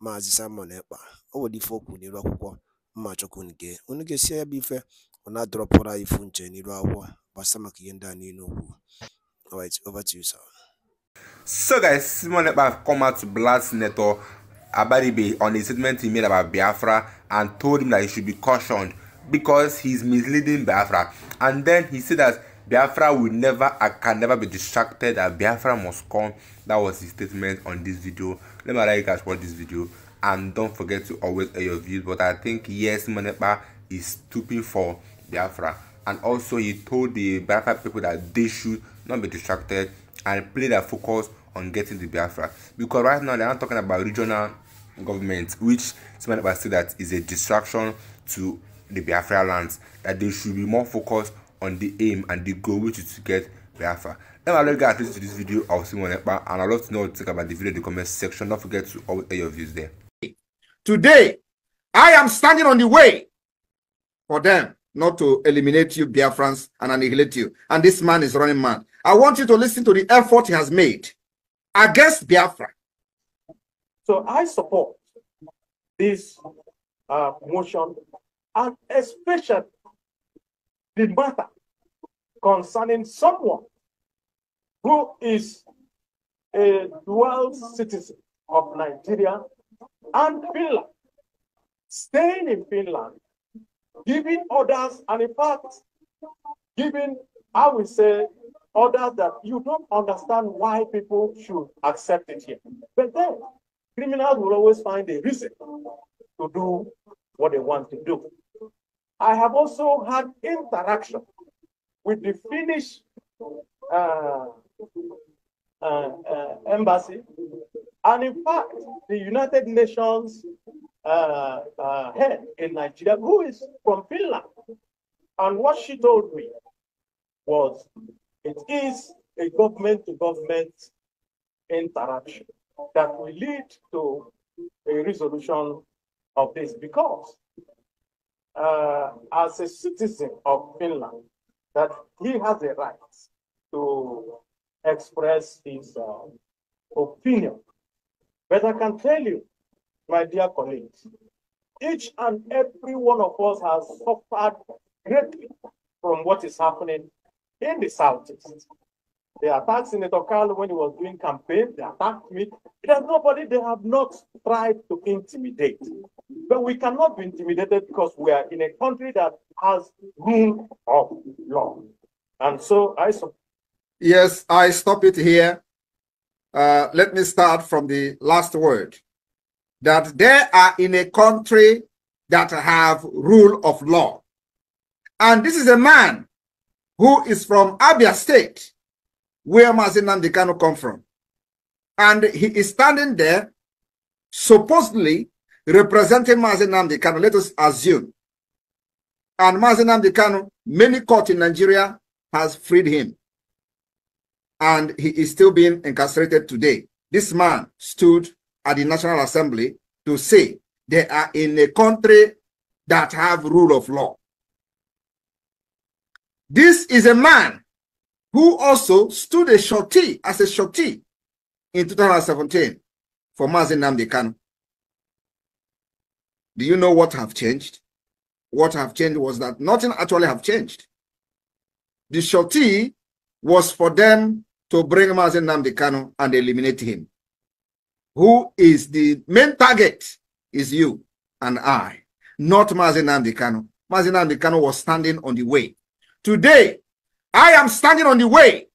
Maazị Simon Ekpa o ife o n'iru akwụkwọ mma chukwu nke unu ga-esi ya bụ ife ọ na-adọrọpụrụ anyị ifu nche n'iru akwụkwọ gbasa maka ihe ndị a niile okwu over to you sir so guys Simon Ekpa have come out to blast Senator Abaribe on a statement he made about Biafra and told him that he should be cautioned because he is misleading Biafra and then he said that Biafra will never I can never be distracted and Biafra must come. That was his statement on this video. Let me know you guys watch this video and don't forget to always air your views. But I think yes, Manepa is stooping for Biafra. And also he told the Biafra people that they should not be distracted and play their focus on getting the Biafra. Because right now they are talking about regional government, which Manepa said that is a distraction to the Biafra lands, that they should be more focused on the aim and the goal which is to get Biafra. Now I love you guys listening to this video of Simon Epa and I'd love to know what you think about the video in the comment section. Don't forget to always air your views there. Today, I am standing on the way for them not to eliminate you, Biafrans, and annihilate you. And this man is running mad. I want you to listen to the effort he has made against Biafra. So I support this uh, motion, and especially the matter concerning someone who is a dual citizen of Nigeria and Finland, staying in Finland, giving orders, and in fact, giving, I would say, orders that you don't understand why people should accept it here. But then, criminals will always find a reason to do what they want to do. I have also had interaction with the Finnish uh, uh, uh, embassy, and in fact, the United Nations uh, uh, head in Nigeria, who is from Finland. And what she told me was it is a government to government interaction that will lead to a resolution of this because uh, as a citizen of Finland, that he has a right to express his uh, opinion. But I can tell you, my dear colleagues, each and every one of us has suffered greatly from what is happening in the Southeast. They attacked Senator Carlo when he was doing campaign. They attacked me. There's nobody they have not tried to intimidate. But we cannot be intimidated because we are in a country that has rule of law. And so I support. Yes, I stop it here. Uh, let me start from the last word that they are in a country that have rule of law. And this is a man who is from Abia State where Mazin Namdekano come from. And he is standing there, supposedly representing Mazin Namdekano, let us assume. And Mazin Namdekano, many court in Nigeria has freed him. And he is still being incarcerated today. This man stood at the National Assembly to say they are in a country that have rule of law. This is a man who also stood a shorty as a shorty in 2017 for Mazen Namdekan. Do you know what have changed? What have changed was that nothing actually have changed. The shorty was for them to bring Mazen Namdekano and eliminate him. Who is the main target is you and I, not Mazen Namdekano. Mazen Namdekano was standing on the way. Today, I am standing on the way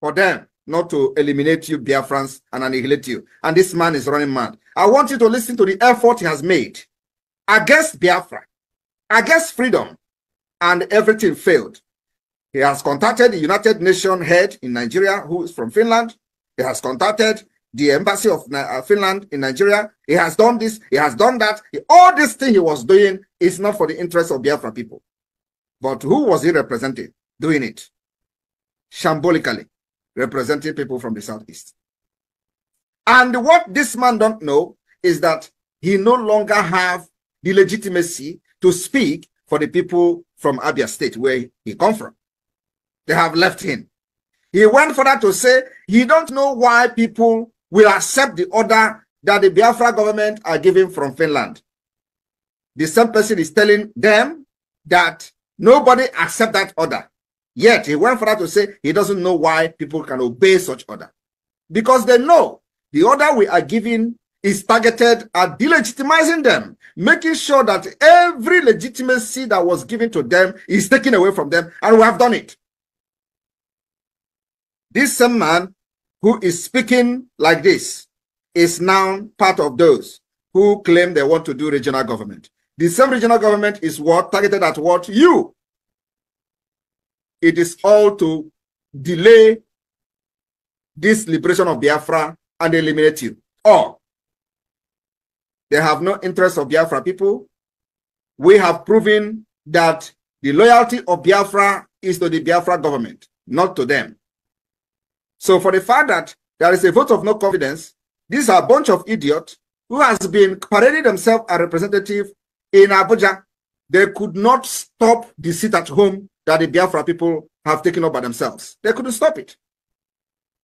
for them not to eliminate you, Biafrans, and annihilate you. And this man is running mad. I want you to listen to the effort he has made against Biafra, against freedom, and everything failed. He has contacted the United Nations head in Nigeria, who is from Finland. He has contacted the embassy of uh, Finland in Nigeria. He has done this, he has done that. All this thing he was doing is not for the interest of Biafra people. But who was he representing? doing it shambolically, representing people from the southeast. And what this man don't know is that he no longer have the legitimacy to speak for the people from Abia State where he come from. They have left him. He went further to say he don't know why people will accept the order that the Biafra government are giving from Finland. The same person is telling them that nobody accept that order. Yet he went further to say he doesn't know why people can obey such order. Because they know the order we are giving is targeted at delegitimizing them, making sure that every legitimacy that was given to them is taken away from them, and we have done it. This same man who is speaking like this is now part of those who claim they want to do regional government. The same regional government is what targeted at what you it is all to delay this liberation of Biafra and eliminate you. Or they have no interest of Biafra people. We have proven that the loyalty of Biafra is to the Biafra government, not to them. So for the fact that there is a vote of no confidence, these are a bunch of idiots who has been parading themselves a representative in Abuja. They could not stop the seat at home that the Biafra people have taken up by themselves. They couldn't stop it.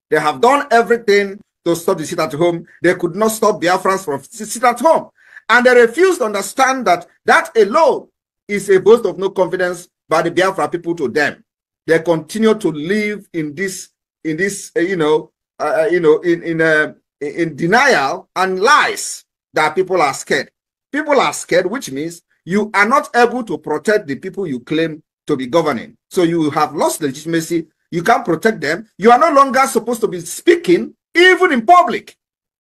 They have done everything to stop the sit at home. They could not stop Biafrans from sit at home. And they refused to understand that that alone is a boast of no confidence by the Biafra people to them. They continue to live in this, in this, uh, you know, uh, uh you know, in in uh, in denial and lies that people are scared. People are scared, which means you are not able to protect the people you claim to be governing. So you have lost legitimacy. You can't protect them. You are no longer supposed to be speaking, even in public,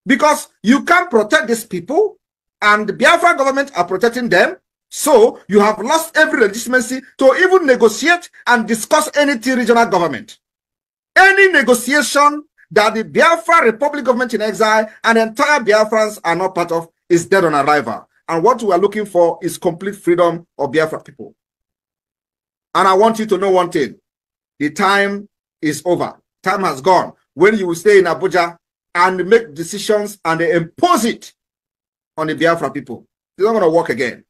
because you can't protect these people, and the Biafra government are protecting them. So you have lost every legitimacy to even negotiate and discuss any regional government. Any negotiation that the Biafra Republic government in exile and entire Biafrans are not part of is dead on arrival. And what we are looking for is complete freedom of Biafra people. And I want you to know one thing. The time is over. Time has gone. When you will stay in Abuja and make decisions and they impose it on the Biafra people, it's not going to work again.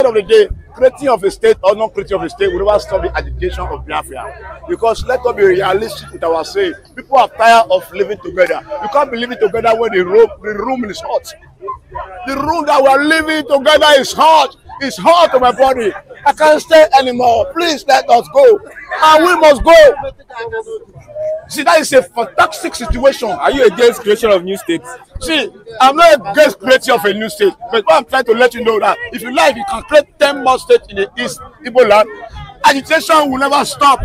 At the end of the day, creating of a state or not creating of a state will never stop the agitation of Biafra. Because let us be realistic with ourselves. People are tired of living together. You can't be living together when the room, the room is hot. The room that we are living together is hot. It's hot on my body. I can't stay anymore. Please let us go. And we must go. See, that is a fantastic situation. Are you against creation of new states? See, I'm not against creation of a new state, but what I'm trying to let you know that if you like, you can create 10 more states in the East Igbo Agitation will never stop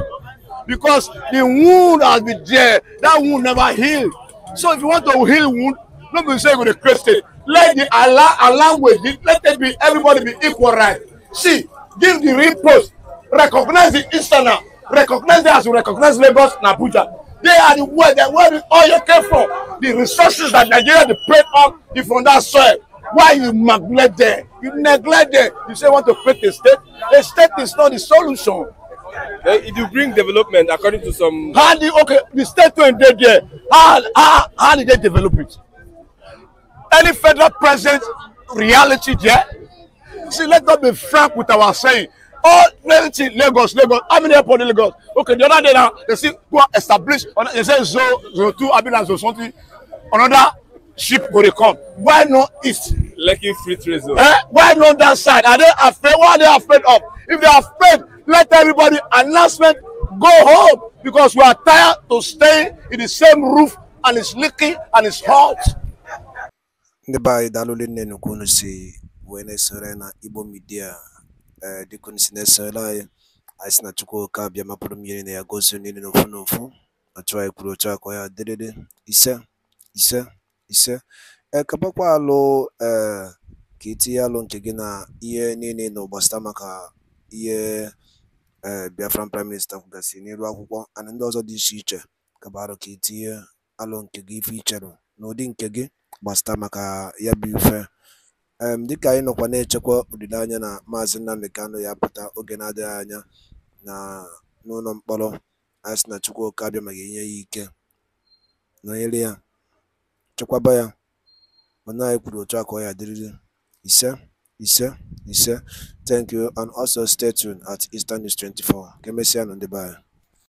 because the wound has been there. That wound never healed. So if you want to heal wound, don't be saying you're going to Let the Allah allow with it. Let it be everybody be equal right. See, give the real post recognize the instana recognize them as you recognize lagos and abuja they are the way the way the oil came from the resources that nigeria dey pay on is from that soil why you neglect them you neglect them you say you want to create a state a state is not the solution. Uh, if you bring development according to some. how the okay the statement dey there how how how did they develop it any federal president reality there see, let's not be frank with our saying. All plenty Lagos, Lagos. How many airport in Lagos? Okay, the other day now, they see who are established. They say Zo, Zo 2, Abilas, Zo something. Another ship go come why not east. Lucky free trade Eh? why not that side are they afraid why are they afraid of if they are afraid let everybody announcement go home because we are tired to stay in the same roof and it's leaking and it's hot. ní wee na na Igbo Media ee eh, dịka unu si na-esore anyị anyị na Chukwu oke abịa mapụrụ mmiri na ya gozie niile na ofu na ofu otu kwuru otu aka ya dịrịrị ise ise ise ee eh, kapakwa alụ ee eh, ka itinye alụ nke gị na ihe niile na ụgbasịta maka ihe ee Biafran prime minista kwugasị n'elu akwụkwọ ana ndị ọzọ dị iche iche alụ ka itinye alụ nke gị ife ichere ụdị nke gị gbasịta maka ya bụ ife um Dịka anyị nọkwa na-echekwa olileanya na Maazị Nnamdi Kanu ya pụta oge na-adịghị anya n'ụlọ mkpọrọ, anyị sị na Chukwuka abịamaghị nye ya ike, nọnyere ya, chekwaba ya, mana anyị kwuru otu a ka ọ ya Ise, ise, ise. Thank you and also stay tuned at Eastern News 24. Ka emesịa nụ ndị